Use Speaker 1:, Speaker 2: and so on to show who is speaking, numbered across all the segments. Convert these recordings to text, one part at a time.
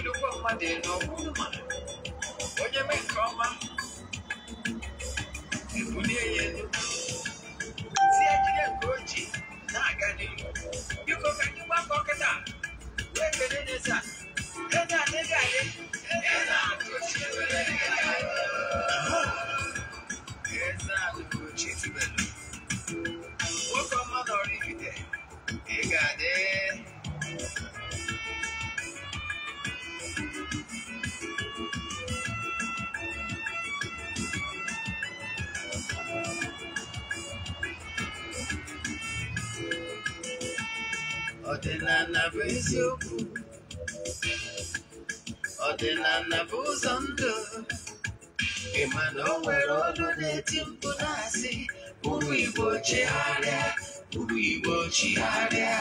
Speaker 1: okirikwa mmadụ elu ọgwụrụ ma onye mee nke ọma ebulie ya elu si ya jide nke ojii na-aga n'ihu biko ka anyị gbakọ kịta wee kele n'eze a ego adịghị adị ego na-atụ chi ebe ọdịnala bụ eziokwu ọdịnala bụ ụzọ na o nwere ọdụ na-eti mkpu na-asị ụmụ igbo chigharịa ụmụ igbo chigharịa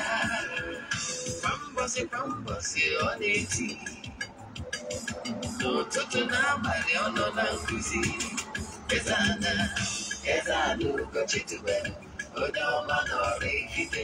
Speaker 1: kwa mgbọsị kwa mgbọsị ọ na-eti ono n'abalị na nkuzi ezana ezana ụkọchitubelu onye ọma nọrọ ikide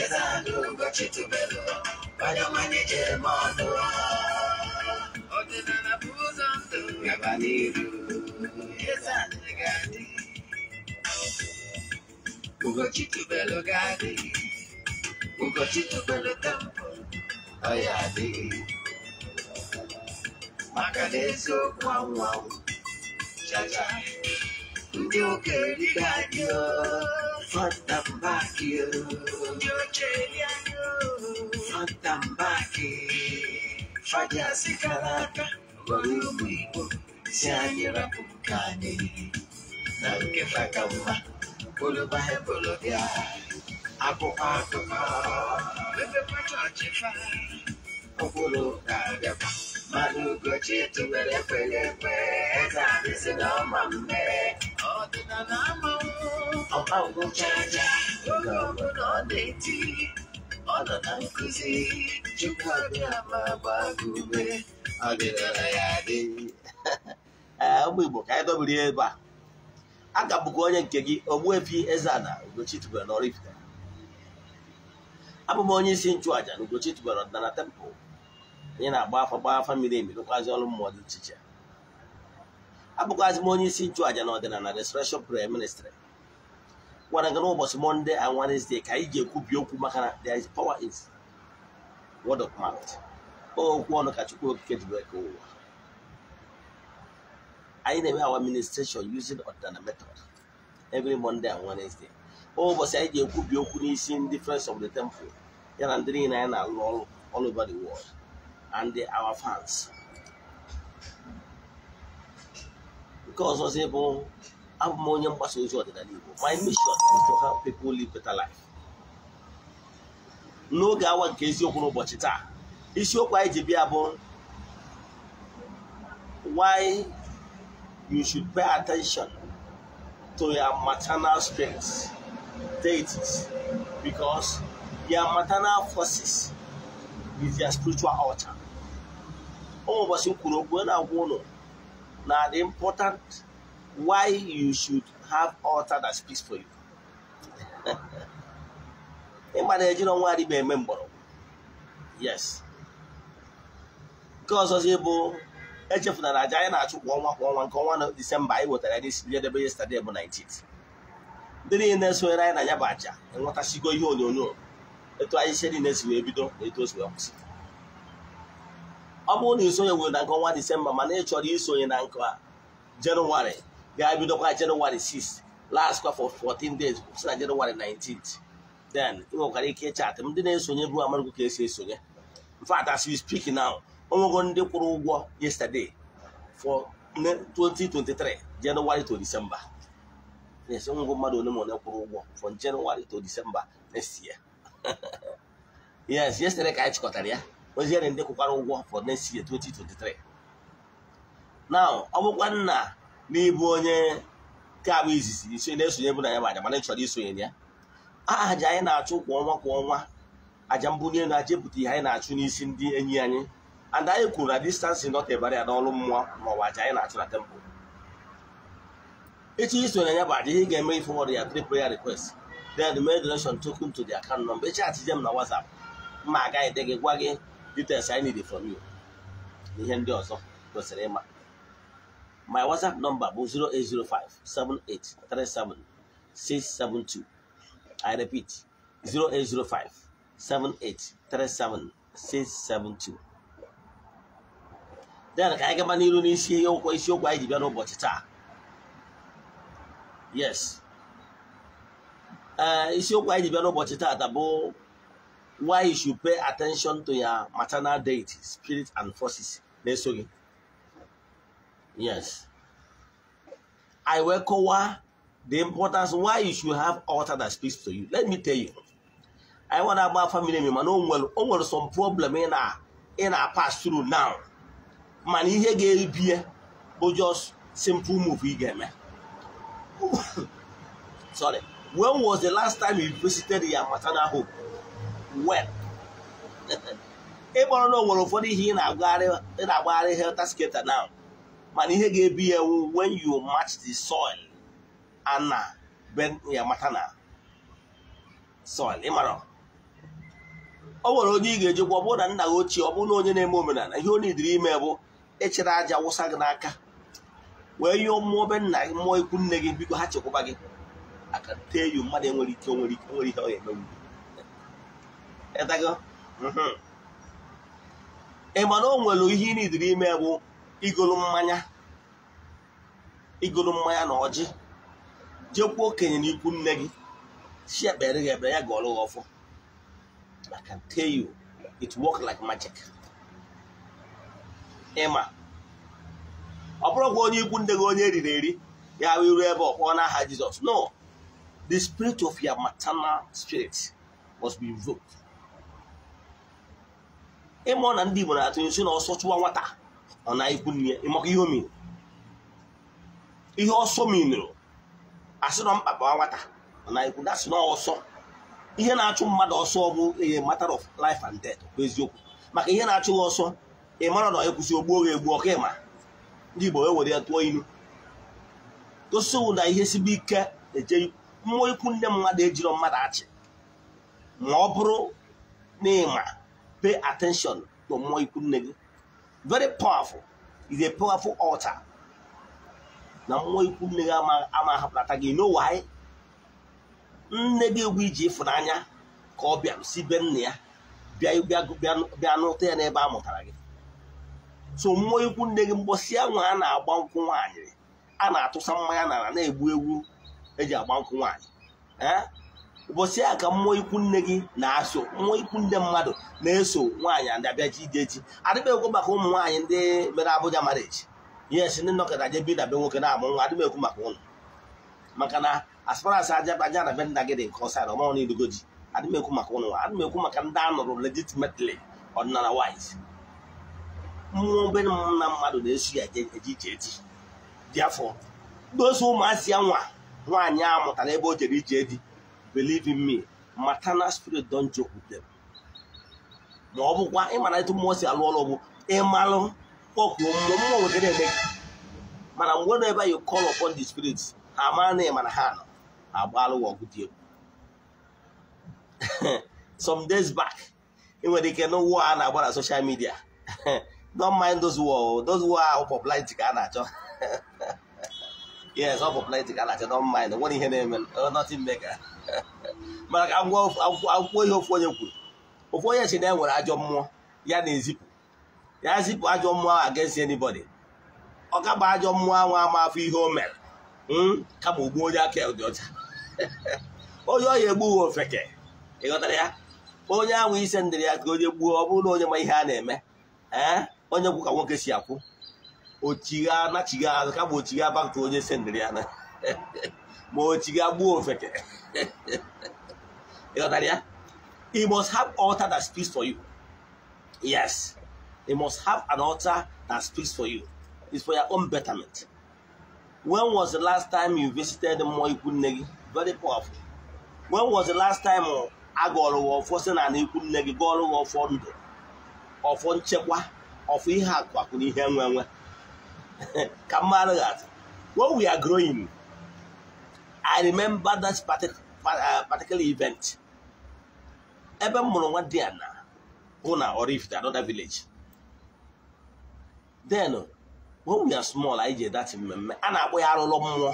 Speaker 1: ezandugo chitubelo vanomanyejere mandoa otenanabuza mdo yavaniru ezanegadi ugo chitubelo gadi ugo chitubelo tampo oyadi maka n'eziokwu anwụ anwụ chacha ndị okenye gadi oo yo yo, Fatambaki. Fatambaki. Fajasi karaka. Walumigo. Sianyira kumkani. Naluke fakamba. Bulubahe bulubia. Apo atoka. Bebe pato achifa. Okulu kagaba. Malugo chitu wele kwele kwe. Tabisi no mambe. Odina na mambe. ọkpa ụbụcha anya oge ọbụla ọ na-eti ọ nọ na nkụzi chukwu abịa ma gbaa gị ume ọdịnala ya adị eh, ụmụ igbo ka anyị dọbiri ya ebe a aka bụkwa onye nke gị Ogbuefi Eze-Ana Ugochi tubelu na Oraifite abụ m onye isi nchụàja na Ugochi ọdịnala temple anyị na-agba afa gba afa mmiri emi rụkwazi ọrụ mmụọ dị iche iche abụkwazị m onye isi nchụàja na ọdịnala Restoration Prayer Ministry gwara gị n'ụbọchị mọnde and wednesday ka anyị ga-ekwubi okwu maka na there is power in word of mouth okwu ọnụ ka Chukwu Okike ji wee ụwa anyị na-eme our administration using ọdịnala method every monday and wednesday ụbọchị anyị ga-ekwubi okwu n'isi ndị friends of the temple ya na ndị niile anyị na-alụ ọrụ all over the world and our fans nke ọzọzi bụ abụ m onye mgbasa ozi ọdịnala Igbo my mission is to help people live better life. n'oge awa nke eziokwu n'ụbọchị taa isiokwu anyị ji bịa bụ why you should pay attention to your maternal strengths deities because your maternal forces is your spiritual altar. ụmụ ụbọchị m kwuru okwu na-agwa ụlọ na the important why you should have altar that speaks for you ị ma na ejiri ọnwa adịba eme mgbọrọgwụ yes nke ọzọ ọzọzi bụ echefunara aja anyị na-achụ kwa ọnwa kwa ọnwa nke ọnwa disemba anyị wetara anyị n'isi ihe yestade bụ 19 ndị niile na sonyere anyị na ya bụ aja enwetasigo ihe onyonyo etu anyị si niile si wee bido na etu o si wee kwụsị ọ bụrụ na isonye were na nke ọnwa disemba mana ị chọrọ isonye na nke a jenụwarị ga-ebidokwa Jenụwarị 6 last kwa for 14 days si na Jenụwarị 19th then ike ịchatị ndị na-esonye bụ amaghị esi esonye in fact as we speak now onwego ndị kwụrụ ụgwọ yesterday for 2023 January to December yes ole from to December next year yes yesterday ka chịkọtara ya oziere ndị kwụkwara ụgwọ for next year 2023 now n'ịbụ onye nke abụ izizi iche na-esonye bụ na ya aja mana ị chọrọ isonye ya aja anyị na-achụ kwa ọnwa kwa ọnwa aja mbunye na aja ihe anyị na-achụ n'isi ndị enyi anyị and anyị kwuru na distansị not a ya n'ọrụ mmụọ ma ọ bụ aja anyị na-achụ na temple echi isonye ya bụ aja ihe ga-eme ifọwọd ya tri prayer request then mee donation token to the account number echi achije m na WhatsApp mma agaghị de gị gwa gị details anyị need from you na ihe ndị ọzọ kwesịrị ịma my whatsapp number bụ 0805 08057837672 i repeat 08057837672 then ka anyị gaba n'iru n'isi okwu isiokwu anyị ji bịa n'ụbọchị taa yes isiokwu eh, anyị ji bịa n'ụbọchị taa bụ why you should pay attention to your maternal deity spirit and forces na-eso gị Yes. I Iwekowa, the importance why you should have altar that speaks to you. Let me tell you. I want a family member no oh, well over oh, some problem in our in our pass through now. Man ihe ga-ebi beer, but just simple move ị Sorry. When was the last time you visited your maternal home? When? Ị know what o nwere ụfọdụ in ị na-agbagharị helter skelter now. mana ihe ga-ebi ya ewu when you match the soil ana ben ya mata na soil ịmara o nwere onye ị ga-eji gwa ọ na nna gị ochie ọ bụrụ na onye na-eme omenala ihe onye idiri ime bụ echere aja wụsa gị n'aka wee yụọ mmụọ be nna gị mmụọ ikwu nne gị biko ha chekwaba gị aka tee yu mmadụ enwere ike nwere ike nwere ihe ọ ga-emenwu ịtago mhm. ịma na o nwere ihe ị na idiri ime bụ igolu mmanya igolu mmanya na ọjị jekwuo okenye na ikwu nne gị si ekpere gị ebere ya ga ọrụ gị ọfọ I can tell you it work like magic ịma ọ bụrụkwa onye ikwu nne gị onye eriri eri ya wee ruo ebe ọ kpọọ n'aha Jizọs no the spirit of your maternal spirit must be invoked ịmụ na ndị Igbo na-atụ nsi na ọsọ chụwa nwata ọ na ikwu nne ya ịmaka ihe omiri ihe ọsọ mmiri, minụrụ mkpa mkpakpa nwata ọ na ikwu dasị na ọsọ ihe na-achụ mmadụ ọsọ bụ ihe matter of life and death bụ eziokwu maka ihe na-achụ ya ọsọ ị mara na ekwụsị ogbuo gị egbu ọka ịma ndị Igbo wewere ya tụọ ilu gosi na ihe sibe ike eje mmụọ ikwu nne mmadụ ejiro mmadụ achị ma ọ bụrụ na ịma pay attention to mmụọ ikwu nne gị very powerful is a powerful altar na mmụọ ikwu nne gị ama ahapụnata gị know why nne gị egwu iji ịfụnanya ka ọ bịa si be nna ya bịa n'ụta ya n'ebe a mụtara gị so mmụọ ikwu nne gị mgbọsi nwa a na-agba nkwụ nwaanyị a na-atụsa mmanya n'ala na-egbu egwu eji agba nkwụ nwaanyị eh? ụbọchị a ka mmụọ ikwu nne gị na-aso mmụọ ikwu nde mmadụ na-eso nwaanyị adabịa ji ideji adịbekwu maka ụmụ nwaanyị ndị mere Abuja marriage yes ndị nọkọta je bi dabe nwoke na-amụ nwa adịbekwu maka ụnụ. maka na asparasị ajabaja na be nna gị dị nke ọsara ọmanwụ n'idugo ji adịmekwu maka ụnụ nwa adịmekwu maka ndị a nụrụ legitimately ọdịnala wise mmụọ obere na mmadụ na-eso ya eje ije eji dị afọ dozie ya nwa nwaanyị a mụtara ebe o jere ije di believe in me maternal spirit don joke with them ma ọ bụkwa ịmara etu mmụọ si alụ ọrụ bụ ịmalụ kpọkuo mmụọ mmụọ nwere eme mana mgbe na ebe you call upon di spirit ha mara na ịmara ha nọ agbalụ ọgụ dị egwu some days back ị nwere ike na ụwa a na-agba na social media don't mind those war those war ahụ popularity ka a na-achọ yes ọ popularity ka a na-achọ don't mind nwere ihe na-eme nothing mega maka akwụkwọ ihe ofu onye kwuru ofu onye si na e nwere ajọ mmụọ ya na-ezipụ ya zipụ ajọ mmụọ against anybody ọ kaba ajọ mmụọ ahụ ama afọ ihe o mere hmm? kama ogbuo onye aka dị ọcha onye ọya egbughị ofeke ịghọtara ya onye ahụ ise ndịrị ya ka onye gbuo ọ bụrụ na onye ma ihe a na-eme ee eh? onye kwu ka nwoke si akwụ ochigha na chigha azụ kama ochigha baktụ onye ise ndịrị ya na ma ochi gị agbuo ofeke ịghọtara ya you must have altar that speaks for you yes you must have an altar that speaks for you it's for your own betterment when was the last time you visited mmụọ ikwu nne gị very powerful when was the last time a gụọrọ gị ọfọ si na ikwu nne gị gụọrọ gị ọfọ ndụ ọfọ nchekwa ọfọ ihe akụ akụ na ihe nwe nwe ka mma gị atụ when we are growing I remember that uh, particular event. Ebe m mụrụ nwa Diana bụ na Oraifite another village. Then when ya small anyị ji dat mmemme a na-akpọ ya arụlọ mmụọ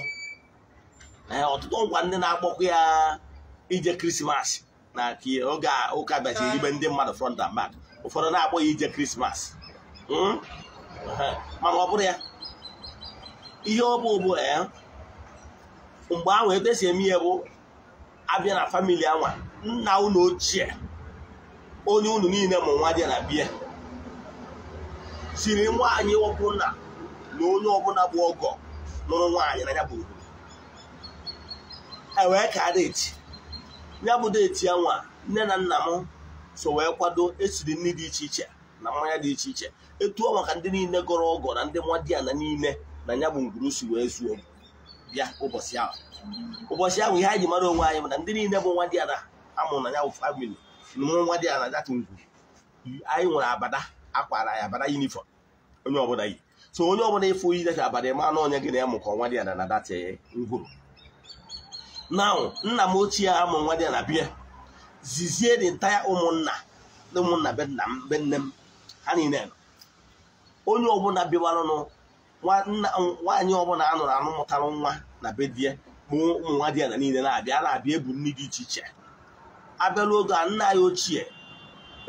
Speaker 1: eh, ọtụtụ ngwa ndị na-akpọkwa ya ije krismas na oge ụka bịachiri ibe ndị mmadụ front and back ụfọdụ na-akpọ ya ije krismas hmm? mana ọ bụrụ ya ihe ọ bụ mgbe ahụ etu esi eme ihe bụ abịa na famili anwa nna ụlọ ochie onye unu niile ma nwa dị na bie siri nwaanyị ọbụla na onye ọbụla bụ ọgọ lụrụ nwaanyị na ya bụ ewee e ka deeti ya bụ deeti nwa nne na nna m so wee kwado esiri nri dị iche iche na mmanya dị iche iche etuo maka ndị niile gọrọ ọgọ na ndị mmadụ ya na niile na ya bụ ngwuru si wee zuo bịa ụbọchị ahụ ụbọchị ahụ ihe anyị ji mara onwe anyị mana ndị niile bụ nwa dị ada amụrụ na ya bụ famili mụrụ nwa dị ada data ngwu anyị nwere abada akwara ya abada yunifọm onye ọbụla yi so onye ọbụla ịfụ iyi data abada ma na onye gị na ya mụkọ nwa dị ada na data eh, ngwuru na nna m ochie amụ nwa dị ada bịa zizie dị ntaya ụmụnna ụmụnna be nna m be nne m ha niile onye ọbụla bịawaranụ nwaanyị ọbụla a nụrụ anụ mụtara nwa na be di ya ma ụmụ nwa di ya na niile na-abịa na-abịa ebu nri dị iche iche abịala oge a nna ya ochie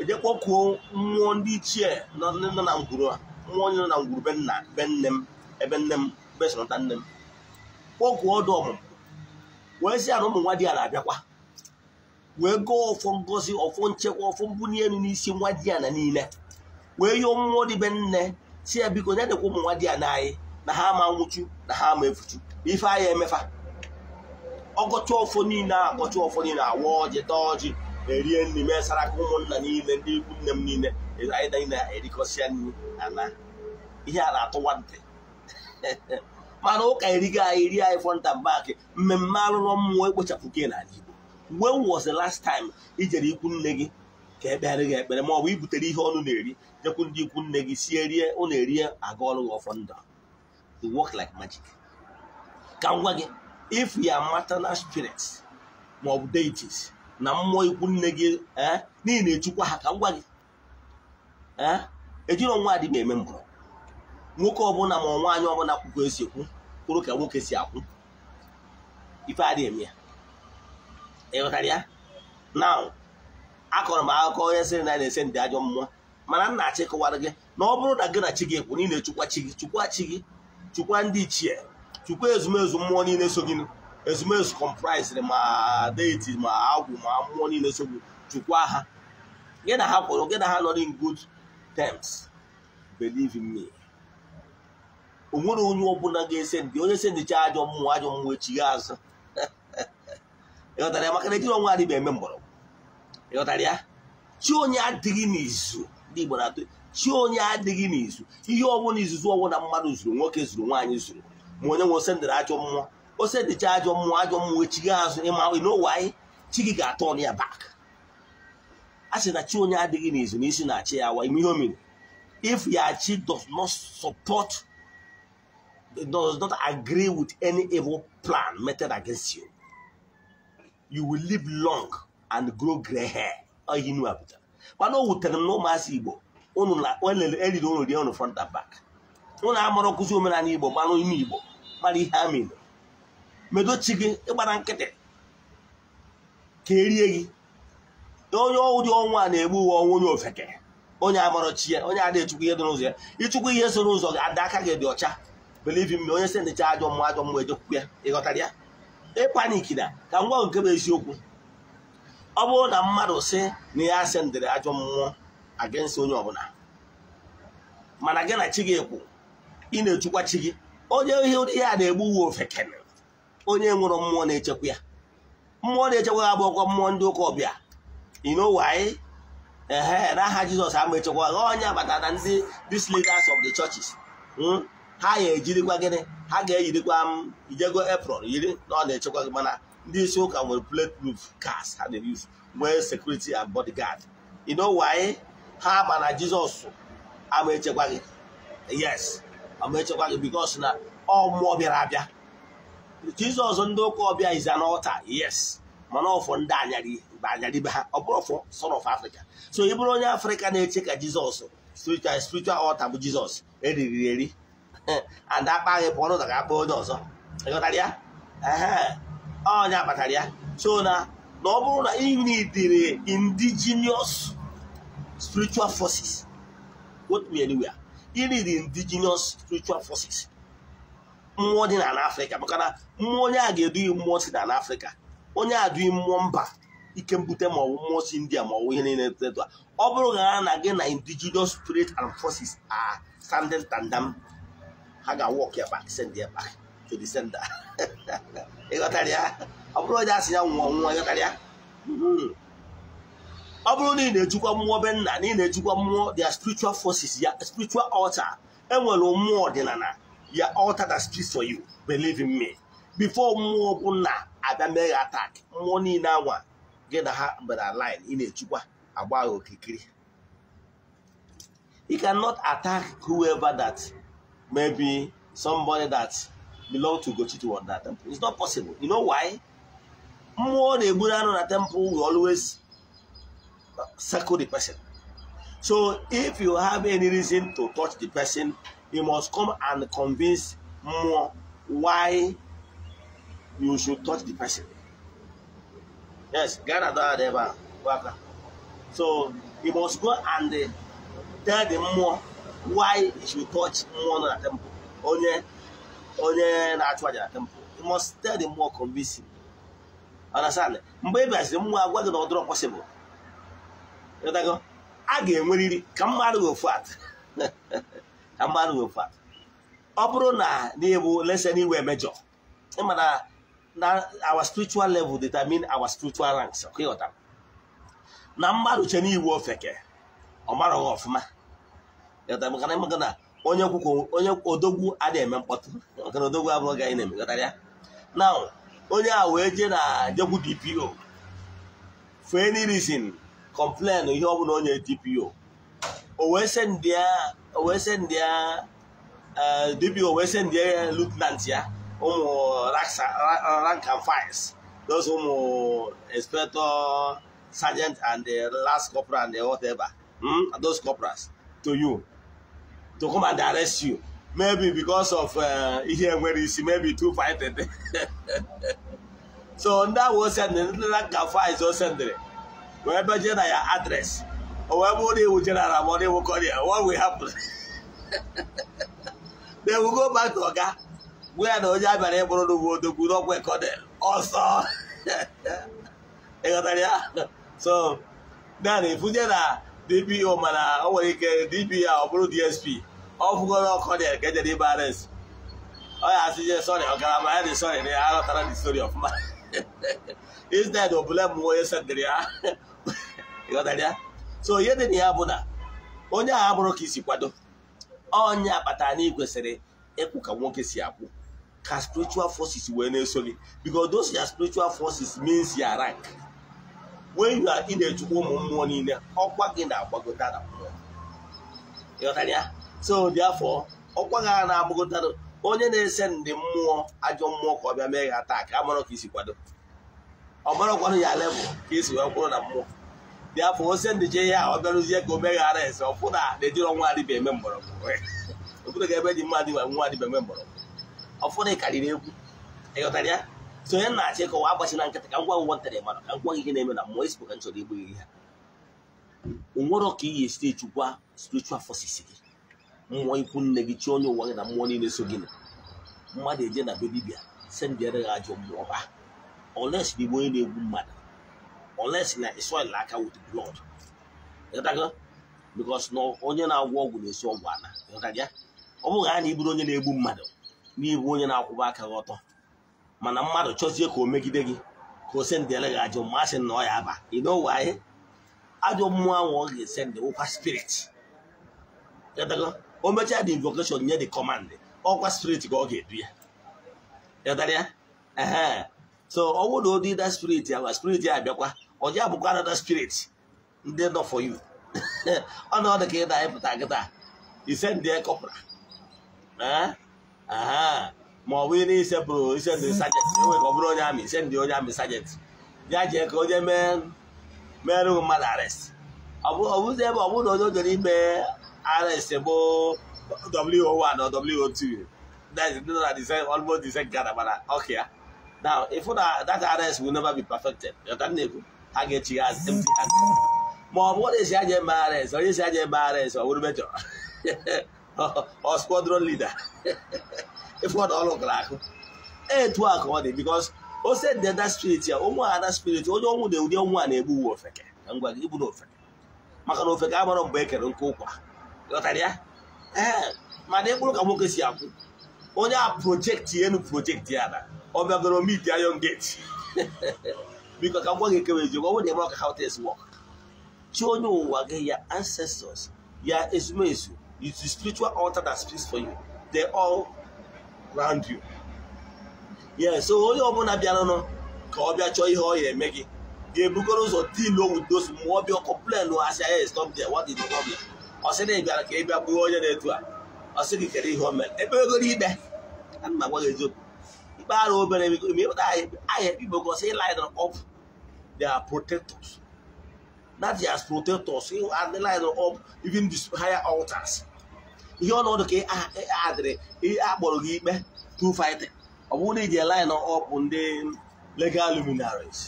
Speaker 1: eje kpọkuo mmụọ ndị ichie nọ na ngwuru mmụọ onye nọ na ngwuru be nna be nne m ebe nne m besonata nne m kpọkuo ọdụ ọmụmụ wee sị ụmụ nwa di ya na-abịakwa wee gụọ ọfọ ngozi ọfọ nchekwa ọfọ mbunye elu n'isi nwa di ya na niile wee yọọ mmụọ be nne si ya biko dedekwa ụmụ ụmụnwa di ya nanyị na ha ama nwụchu na ha ama efuchu ife anya emefa ọgọcha ọfọ niile agọchi ọfọ niile awa ọjị taa ọjị erie nri mesara ka ụmụnna niile ndị ikwu nne m niile anyị niile erikọsịa nri ana ihe a na-atụwa ntị mana ụka erigo anyị ri anyị fọnta baakị mmemme alụlọ mmụọ ekpochapụ ke n'ala Igbo when was the last time ijere ikwu nne gị ka ekpegharị gị ekpere ma ọ bụ ibutere ihe ọnụ na-eri jekwu ndị ikwu nne gị sie rie ụna erie aga ọrụ gị ọfọ ndụ it work like magic ka ngwa gị if ya maternal spirit ma ọ bụ deities na mmụọ ikwu nne gị eh, n'ihi na echukwa ha ka ngwa gị eh, ejiri ọnwa adịghị eme mbụrụ nwoke ọbụla ma nwaanyị ọbụla akwụkwọ esi ekwu kwụrụ ka nwoke si akwụ ife adịghị eme ya ịghọtara ya now akọrọ m akụkọ onye sịrị na na-ese ndị ajọ mmụọ mana nna achị kọwara gị na ọ bụrụ na gị na chi gị ekwu niile chukwa chi gị chukwa chi gị chukwa ndị ichie chukwa ezumezu mmụọ niile so gị ezumezu kọmprisịrị ma deiti ma agwụ ma mmụọ niile so gị chukwa ha gị na ha kwụrụ gị na ha nọ in good tems believe me o nwere onye ọbụla ga-ese ndị onye se ndị chi ajọ mmụọ ajọ mmụọ echi gị azụ ịghọtara ya maka na ejiri ọnwa adịghị eme mgbọrọgwụ ịghọtara ya chi onye adịghị n'izu ndị Igbo na-atụ chi onye adịghị n'izu ihe ọbụla izuzu ọbụla mmadụ zuru nwoke zuru nwaanyị zuru ma onye nwe ose ndịrị ajọ mmụọ ose dịcha ajọ mmụọ ajọ mmụọ echi gị azụ ịma n'ụwa anyị chi gị ga-atọ ọnụ ya bak a sị na chi onye adịghị n'izu na isi na-achị ya awa ime ihe o mere if ya chi does not support does not agree with any evil plan meted against you you will live long and grow grey hair ihe inu apụtara mana o wutere m na ụmụasị igbo eriri ụnụ rie ụnụ front and back ụnụ amụrụ nkụzi omenala igbo gbanụ ime igbo mara ihe ha mere medochi gị ịgbara nkịtị ka erie gị onye ụdị ọnwa na-egbu uwe ọnwa onye ofeke onye chi ya onye adịghị chukwu ihe dị n'ụzọ ya ịchụkwu ihe so n'ụzọ gị ada aka gị dị ọcha believe me onye si ndịcha ajọ mmụọ ajọ mmụọ ejekwukwu ya ịghọtara ya ịpanik na ka m gwa nke bụ eziokwu ọ bụrụ na mmadụ si na ya asendịrị ajọ mmụọ against onye ọbụla mana gị na chi gị ekwu ị na-echukwa chi gị onye ihe ụdị ya na-egbu uwe ofekene onye nwụrụ mmụọ na-echekwa ya mmụọ na-echekwa ya bụ ọkwa mmụọ ndị ụka ọbịa inowai ehe n'aha jizọs ama echekwa ha onye na ndị these leaders of the churches hmm, ha ya ejirikwa gịnị ha ga-eyirikwa m ijego apron yiri na ọ na-echekwa gị mana ndị isi ụka nwere bulletproof cars ha na-eyuzu nwee sekuriti and bodyguard you know why ha ma na Jizọs ama echekwa gị yes ama echekwa gị because na ọ mmụọ bịara abịa Jizọs ndị ụka ọbịa is an altar yes mana ọfọ oh, ndị anyarị mgbe anyarị be ha ọ oh, bụrụ ọfọ son of Africa so ị bụrụ onye Afrịka na-eche ka Jizọs spiritual spiritual altar bụ Jizọs eriri eri and akpa gị pụọ n'ụzọ ga-akpa onye ọzọ ịghọtara ya onye kpatara ya so na na ọ bụrụ na ị nidiri indigenous spiritual forces what me anywhere ị need indigenous spiritual forces mmụọ dị n'ala afrịka maka na mmụọ onye a ga-edughị mmụọ si n'ala afrịka onye a dughị mmụọ mba ike mbute maọbụ mmụọ si india maọbụ ihe niile teta ọ bụrụ na ha na gị na indigenous spirit and forces are standing tandem ha ga-awọk ya back send ya back to the ịghọtara ya ọ bụrụ onye asị ya nwụọ nwụọ ịghọtara ya hmm. ọ bụrụ na ị na-ejikwa mmụọ be nna na ị na-ejikwa mmụọ their spiritual forces ya spiritual altar enwere mmụọ ọdịnala ya altar that speaks for you believe in me before mmụọ bụ nna abịa mee attack mmụọ niile anwa gị na ha mbara line ị na-ejikwa agba ha okirikiri you cannot attack whoever that maybe somebody that belong to Gochitu on that temple. It's not possible. You know why? More the Buddha temple will always circle the person. So if you have any reason to touch the person, you must come and convince more why you should touch the person. Yes, Ghana don't ever So you must go and tell the more why you should touch more na temple. Onye onye na-achụ aja na temple you must tell them more convincing understand mgbe ị e bịaziri mmụọ agwa gị na ọdụrọ possible a ga-enweriri ka mmadụ ofu at ka mmadụ ofu at ọ bụrụ na n'ịbụ lesen iwe mejọ ịma na na our spiritual level determine our spiritual ranks ịghọta na mmadụ che n'iwu ofeke ọ maraghị ọfụma ịghọtara maka na ịmaga na onye onye odogwu adịghị eme mkpọtụ nke na odogwu abụrụ gị anyị na-emekọtara ya na onye a wee jee na jegwu DPO for any reason complain ihe ọbụla onye DPO o wee send ya o wee DPO eh, wee send ya lieutenant ya ụmụ rank and files those ụmụ inspector sergeant and last corporal and whatever hmm, those corporals to you to come and arrest you maybe because of uh, ihe enwere isi maybe two fighting so ndị ahụ osendịrị ndị na nka faiz osendịrị wee beje na ya adres o wee bụrụ na iwu general ma ọ na-ewu what we happen na ewu go back to oga gwa ya na onye a bịara ịbụrụ n'ugwu odogwu n'ọkwa ekonel ọsọ ịghọtara ya so naanị ifunye na dpo mana o nwere ike dpo ọ bụrụ dsp ọ ọkọ dị nke dị ibara nsi ọ ya asịje sọrị ọgarama ya dị sọrị na ya aghọtara dị sori ọfụma instead obule m onye sedịrị ya ịghọtara ya so ihe dị na ya bụ na onye ahụ abụrụ ka isi kwado onye akpatara na ị kwesịrị ịkwụ ka nwoke si akwụ ka spiritual forces wee na-eso gị because those ya spiritual forces means ya rank wee you are ị na-echukwa ụmụ mmụọ niile ọkwa gị na-agbagote na mmụọ ịghọtara ya so dị ọkwa ha a na-agbakọtara onye na-ese ndị mmụọ ajọ mmụọ ka ọ bịa mee ha taa ka a mara ka isi kwado ọ marakwanụ ya lebụ ka esi wee kwụrụ na mmụọ dị ose ndị je ihe a ọ bịarụzie ka o meghara ese ọfụ na na-ejiri ọnwa adịba eme mgbọrọgwụ obodo ga ebe dị mma adịba nwa adịba eme mgbọrọgwụ ọfụna karịrị egwu ịghọtara ya so onye na-achị kọwa na nkịta ka ngwa ụgwọ ntara mmadụ ka ngwa ihe na-eme na mmụọ esipụ ka m chọrọ igbu gị ha o ka iyi spiritual forces gị mmụọ ikwu nne gị chi onye ụwa gị na mmụọ niile so gị mmadụ eje na be dibịa si ndị ajọ mmụọ ba oles na igbo onye na-egbu mmadụ oles na israel aka bikos na onye na-agwọ ọgwụ na-esi ọgwụ ala ọ bụghị a na onye na-egbu mmadụ n'ibu onye na-akwụba aka gị ọtọ mana mmadụ chọzie ka o megide gị ka o sendị eleghị ajọ mmasị na ọ ya aba ịnọwe ajọ mmụọ ahụ ọ ga-esendị wụkwa spirit o mechaa dị invocation nye di command ọkwa spirit ka ọ ga-edu ya ịghọtara ee so ọ bụrụ na da spirit ya gwa spirit ya abịakwa ọ ji abụkwa anada spirit ndị nọ for you ọ na ọ dị ka ị na-ayịpụta nkịta ise ndị ekọpụra ọ wo or 2 almost the same mana now if una that RS will never be perfected a ga-echi as hand ma ọ bụ onye si aja RS onye si RS leader na ọlụ gara ọ dị o spirit ya ụmụ ada onye ọnwụ na ọnwụ a na-egbu uwe ofeke na ngwa gị ibu na na ofeke mgbe e nke ụkwa Eh, mana ịkpụrụ ka nwoke si akwụ onye a projekti enu projekti ya na ọ bịagoro mit ayon geti biko ka ngwa gị ekewe eziokwu ọ bụrụ na ịma ọka how things work chi onye ụwa gị ya ancestors ya ezumezu is the spiritual altar that speaks for you they all round you yeah so onye ọbụla bịaranụ ka ọ bịa chọọ ihe ọ ya eme gị ga-ebukọrọ ụzọ deal with those mmụọ bịa complain asị ya stop there what is the problem ọ sị na ị bịara ka ị bịa bụrụ onye na-etu a ọ sị gị kere ihe o mere ebe egoro ikpe ana m agwa gị eziokwu ikpe arụ obere mepụta aha ikpe gosi ịlaịdịn ọf their protectors that their protectors ịlaịdịn ọf even the higher altars ihe ọnọdụ ka adịrị akpọrọ gị ikpe through fighting ọ bụrụ na iji line up ndị legal luminaries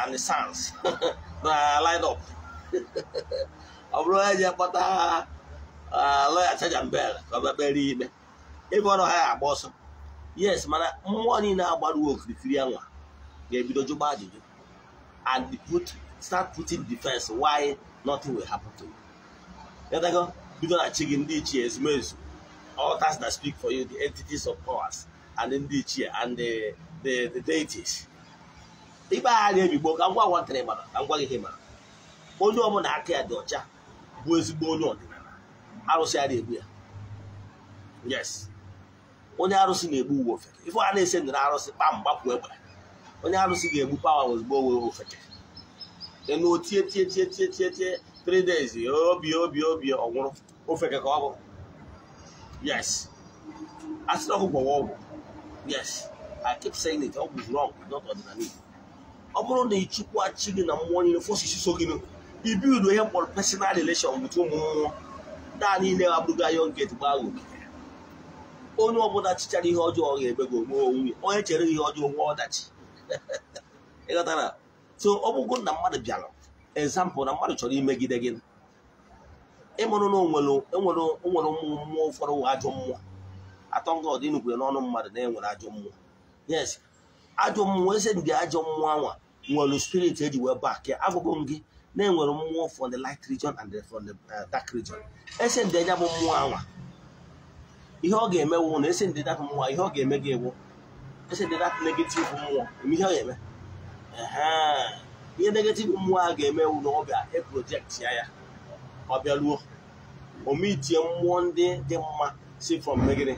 Speaker 1: and sons na line up ọ bụrụ onye ji akpọta lọya chajambel ka ọ bịa kpere ikpe ebe ọrụ ha agba ọsọ yes mana mmụọ niile agbaruo okirikiri anwa ga-ebido jụba ajụjụ and put start putting defense why nothing will happen to you yatago bido na chi gị ndị ichie ezumezu altars that speak for you the entities of powers and ndị ichie and the the, deities ikpe agha na-emigbo ka ngwa ngwa ntịrị mara ka ngwa gị mara onye ọbụla aka ya dị ọcha bụ ezigbo onye ọdịnala arụsị ya na-egbu ya yes onye arụsị na-egbu uwe ofeke ife a na-ese ndị arụsị kpam gbapụ egbe onye arụsị ga-egbu pawa ozugbo owe ofeke ịnụ tie tie tie tie tie tie three obi obi obi ọnwụrụ ofeke ka ọ bụ yes ọgwụ yes i keep saying it zuru ọgwụ not ọdịnala ọ bụrụ na ịchụkwa chi gị na mmụọ niile so gị ibild ihe mkpọrọ personal relation bụtụ ụmụnwụ naanị ile abụrụgo anya get gbaa onye ọbụla chichara ihe ọjọọ ga ebe gị onwe onwe onye chere ihe ọjọọ nwe ọdachi ịghọtara so ọ bụgo na mmadụ bịara ezampụl na mmadụ chọrọ imegide gị ịmụrụ na onwere mmụọ ụfọdụ ajọ mmụọ atọ nga ọdị n'ọnụ mmadụ na enwere ajọ mmụọ yes ajọ mmụọ eze ndị ajọ mmụọ anwa nwere spirit eji wee bak abụghị m gị na-enwere mmụọ for the light region and for the uh, dark region ese ndị anya bụ mmụọ anwa ihe ọ ga-eme wụ na ese ndị dapụ mmụọ ihe ọ ga-eme gị ewu ese ndị dapụ negative mmụọ eme ihe ọ ga-eme ihe negative mmụọ a ga-eme wụ na ọ bịa eprojekt ya ya ọ bịaruo omitie mmụọ ndị dị mma si from megide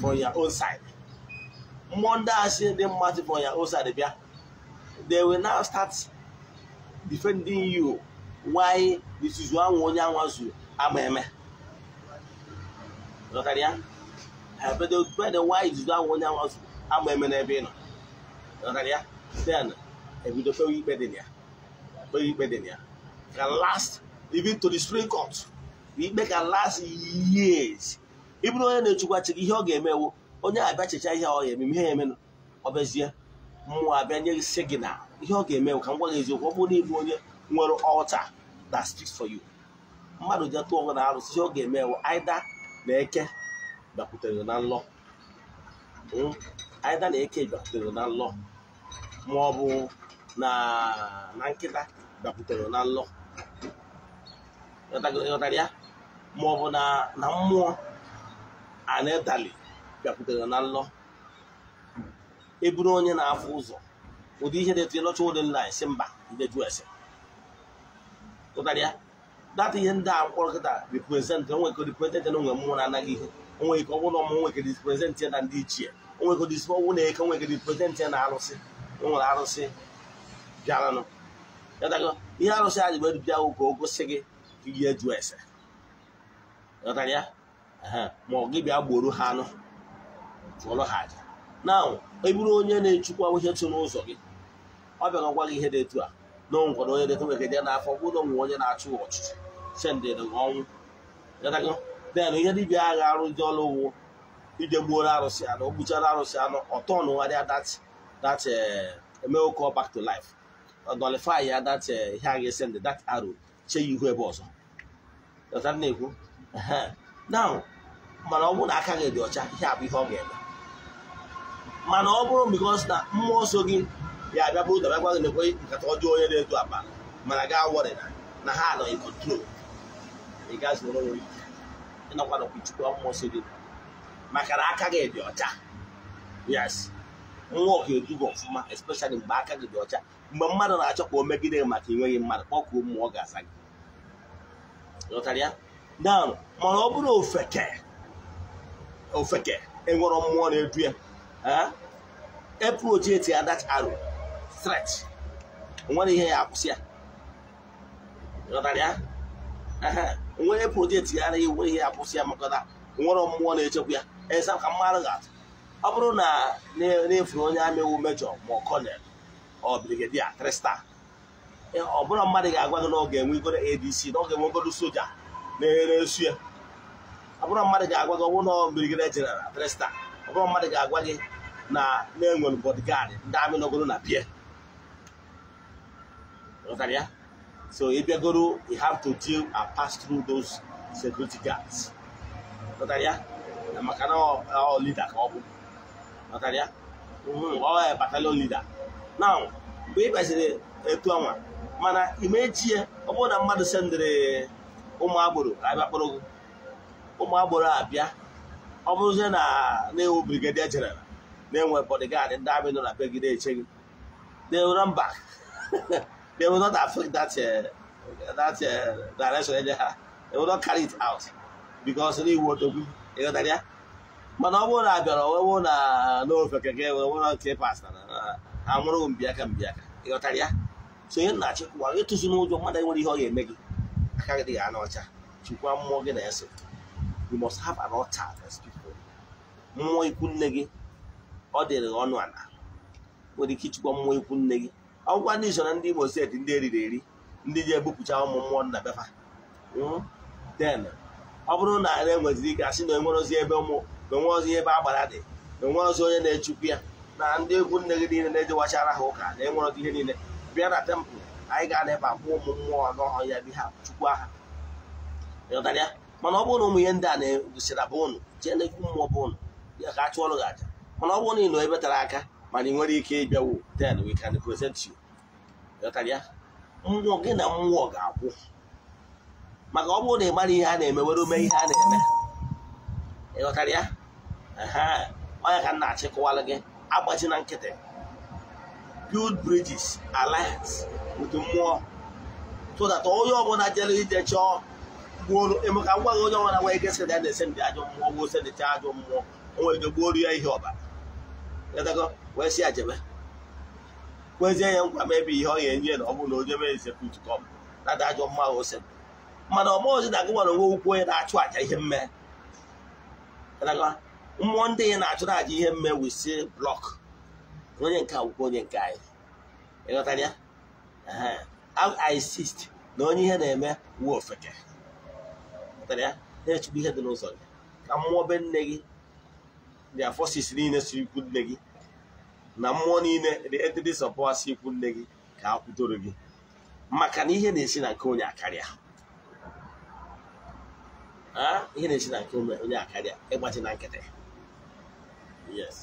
Speaker 1: from ya own side mmụọ ndị a si dị mma si from ya own side bịa they will now start defending you why this is one onye anwa zuru agba eme zọtara ya ha bedo bedo why this is one onye anwa zuru agba eme n'ebe ị nọ zọtara ya then ebido kpewe ikpe dị ya kpewe ikpe dị ya can last even to the supreme court ikpe can last years ị bụrụ onye na-echukwa chi ihe ọ ga-emewo onye abịa checha ihe ọ ga-eme ihe emenụ ọ bịazie mmụọ abịa nye gị signal ihe ọ ga-eme ka m gwa gị eziokwu ọ bụrụ na ịbụ onye nwere ọlta that speaks for you mmadụ ji tụọ na arụsị ihe ọ ga-eme aida na eke bịakwutere na nlọ aida hmm, na eke bịakwutere na nlọ ma ọ bụ na nkịta bịakwutere na nlọ ịghọtara ya ma ọ bụ na mmụọ anedali bịakwutere na nlọ eburu onye na-afụ ụzọ ụdị ihe na-etinye n'oche ụdị nna si mba ndị eju ese ụtarị ya data ihe ndị a kpọrọ kịta reprezentị onwe ike reprezentị na onwe mmụọ na-anaghị ihe onwe ike ọbụla ọmụ nwe ike ya na ndị ichie onwe ike disi ọnwụ na eke onwe ike reprezentị na arụsị nwere arụsị bịaranụ ịtago ihe arụsị a jibere bịa ka o gosi gị ka ihe ju ese ịghọtara ya ma ọ gị bịa gboro ha anụ chụọrọ ha aja na eburu onye na-echukwa ihe tụ n'ụzọ gị ọ bịara ọgwa gị ihe dị etu a na o nwere onye detụ n'afọ bụrụ onwe onye na-achụ ọchịchị sendịrị ọnwụ den ihe dibịa agha arụ ndị ọrụ ugbo ije gbuoro arụsị anụ o gbuchara arụsị anụ ọtọ ọnụgharịa that that eh, emeo call back to life nullify ya that eh, ihe agha ga-esendị that arrow chee ya ihu ebe ọzọ na-ekwu now mana ọ bụrụ na aka gị dị ọcha ihe a bụ ihe ọ ga-eme mana ọ bụrụ because na mmụọ nsọ gị ya abịa bụrụ dabịa gwa gị na ekwe nkata ọjọọ onye na-edu akpa mana gaa wọrị na ha nọ in control ị gaghị zụrụ onwe ike ịnọkwa nakwa chukwu mmụọ si dị maka na aka gị dị ọcha yes nwa ọka edugo ọfụma especially mgbe aka gị dị ọcha mgbe mmadụ na-achọ ka o megide gị maka enweghị mmadụ kpọkuo mmụọ ga-asa gị lọtara ya down mana ọ bụrụ ofeke ofeke enwere mmụọ na-edu ya ya adat aro threat nwere ihe ya akwụsị ya ịghọtara e ya nwere projekti ya anaghị ihe ya kwụsị ya maka na nwere mmụọ na-echekwa ya esa ka mmadụ ga-atụ ọ bụrụ na na-efu onye amị iwu mejọ ma kọnel ọ e, mmadụ ga gị na ọ ga-enwe na ọ ga-enwe soja na ya ọ bụrụ mmadụ ga-agwa gị ọ bụrụ na ọ brigedia na mmadụ ga-agwa gị na na-enwere bodyguard ndị amị na pie ya so ị bịagoro you have to deal and uh, pass through those security guards maka na ọ leader ka ọ bụ ya leader now mgbe gbaziri etu ọnwa mana imechie ọ bụrụ na mmadụ sendịrị ụmụ agboro abịa kpọrọ gị ụmụ agboro na na brigadier general na-enwe bodyguard ndị amị nọ na be gị na run They will not affect that uh, that uh, direction anyhow. They will not carry it out because ndị Igbo tokwu ịghọtara ya mana ọ bụrụ na abịara ọwụwụ na n'ofe keke nwere nke pasta na ha nwụrụ mbiaka mbiaka ịghọtara ya so onye na-achị kwụwa ịtụzi n'ụjọ mmadụ nwere ihe ọ ga-eme gị aka gị dịghị ọcha mmụọ gị na-eso you must have an altar people mmụọ gị ọ dịrị ọnụ ala ike ịchịkwa mmụọ ikwu nne gị ọgwụkwa ndị so na ndị Imo steeti ndị eriri eri ndị ji ebupụcha ụmụ mmụọ nna befa den hmm? ọ bụrụ na ala enweziri ike asị na enwere ebe ụmụ na e onwe ozi ebe agbara dị na e onwe ozi onye na-echukwu ya na ndị egwu nne gị niile na-ejewachara ha ụka na enwere ihe niile bịa na tempụl anyị ga na-ebe akwụ ụmụ mmụọ n'ọhụrụ ya bi ha chukwu aha ịghọtara ya mana ọ bụrụ na ụmụ ihe ndị a na-egosira bụ ụnụ jee n'ekwu mmụọ bụ ụnụ ya ka a chụọrụ gị aja mana ọ bụrụ na ị nọ ebe tara aka mana ị nwere ike ịbịawo then we can present you ghọtara ya nrọ gị na mmụọ ga-akwụ maka ọ bụrụ na ị mara ihe a na-eme were mee ihe a na-eme ịghọtara ya onye ka nna achịkọwala gị agbaji na nkịtị build bridges alliance with mmụọ so that onye ọbụla jere ije chọọ gbuoro emeka ngwa gị onye ọbụla nwee ike sị na ya na-ese ndị ajọ mmụọ gboo sendịcha ajọ mmụọ onwe nwere ike gbuoro ya ihe ọbara wee sị ya jebe kwezie ya nkwa mebi ihe ọ ga-enye na ọ bụ na o jebe ezepụt kọm nada ajọ mma ose mana ọmụozi na agụ nwere onwe ukwu onye na-achụ aja ihe mme mmụọ ndị ya na-achụrụ aja ihe mme wisi blọk onye nke akwụkwọ onye nke anyị ịghọtara ya insist na onye ihe na-eme wuo ofeke na-echugbu ihe dị n'ụzọ gị ka mmụọ be nne gị the forces niile si ikwu nne gị na mmụọ niile dị entities of power si ikwu nne gị ka a kwutoro gị maka na ihe na-esi na nke onye akarịa ihe na-esi na nke onye akarịa ịgbaji na nkịtị yes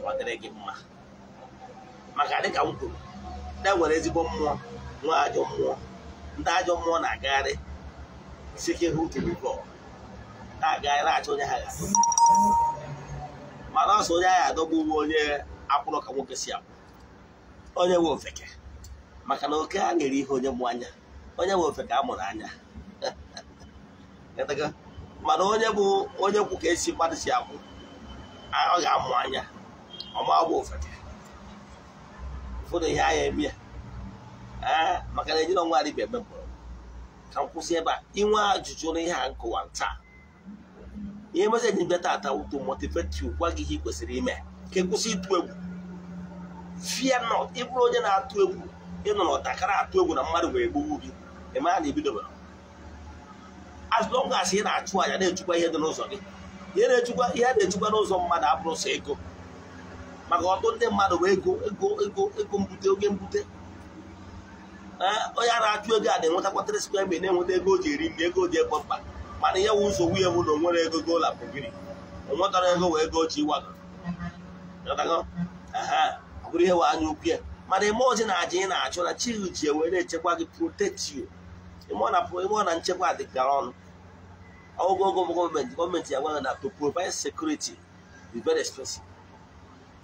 Speaker 1: kwadịrị gị mma maka dịka m kwuru ndị e nwere ezigbo mmụọ nwee ajọ mmụọ ndị ajọ mmụọ na-agagharị sike hụ tiri na-agagharị achọ onye ha ga mana asụ onye agha adọgbu onye akwụrụ ka nwoke si akwụ onye nwe ofeke maka na oke a nyere ihe onye mụ anya onye nwe ofeke a mụrụ anya mana onye bụ onye kwụ ka esi mmadụ si akwụ ọ ga-amụ anya ọma bụ ofeke ụfọdụ ihe agha eme ya maka na ejiri ọnwa adịbịa eme mkpọrọ ka m kwụsị ebe a inwe ajụjụ na ihe a nkụwa taa ihe meseji bịa tata to motivate you gwa gị ihe ị kwesịrị ime ka e kwụsị ịtụ egwu fie nọ ịbụrụ onye na-atụ egwu ịnọ n'ọtakara atụ egwu na mmadụ wee gbugbu gị mara na ibidobara as long ị na-achụ anya na-echukwa ihe dị n'ụzọ gị ihe na-echukwa ihe na-echukwa n'ụzọ mmadụ abụrụ sọ ego maka ọtụ ndị mmadụ bụ ego ego ego ego mbute oge mbute onye a na-achụ ego a na-enwetakwa 3 square na-enweta ego o ji eri nri ego o ji egbo mkpa mana ya wụ ụzọ nwunye m na onwere ego gola pụgiri onwetara ego wee go chi ịwago bụrụ ihe wee anya ukwu ya mana ime ozi na aja ị na-achụ na chi ji wee na-echekwa gị protekti ịmụọ na nchekwa dịgara ọnụ ogogo gọọmenti gọọmenti ya gwaghị na to provide security is very expensive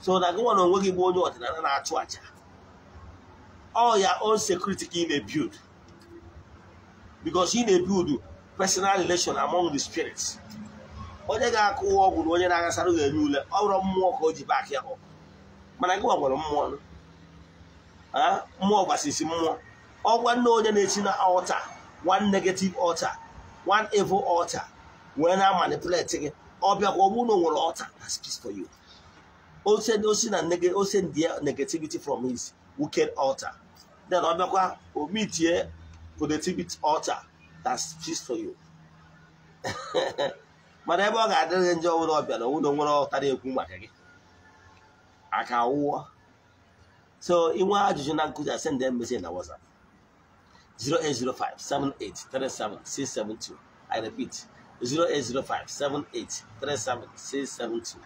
Speaker 1: so na gịnwa na onwe gị bụ onye ọdịnala na-achụ aja ọ ya own security ka ị na-ebild because ị na-ebild personal relation among the spirits onye ga-akụ ụwa ọgwụ na onye na-agasara ga-enye ọ bụrụ mmụọ ka o ji baak ya mana gị nwere mmụọ mmụọ gbasisi mmụọ ọgwa nne onye na-echi na ọta one negative ọta one evil ọta wee na-amanipuleti gị ọbịa ka ọ bụrụ na o nwere ọta osi na ose ndị negativity from his wicked ọta then ọbịakwa omitie positivity ọta that's just for you mana ebe ọ ga-adịrị ndị nje ọbụla ọbịa na ụlọ nwere ọtara ekwu maka gị aka wụọ so inwe ajụjụ na nkụzi asend message na WhatsApp 08057837672 I repeat 08057837672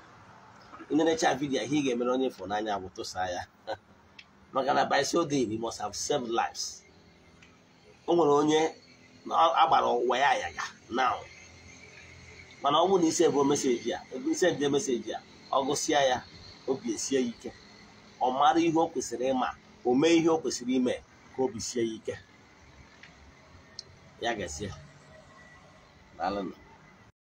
Speaker 1: ị na-echa vidiyo ihe ị ga-emere onye fọ n'anya bụ tụsa ya maka na by so day must have saved lives o nwere onye na agbara ụwa ya ya na mana ọ bụ na ise bụ meseji ya ise dị meseji ya ọ gụsịa ya obi esie ya ike ọ mara ihe o kwesịrị ịma o mee ihe o kwesịrị ime ka obi sie ya ike ya ga-esie daalụnụ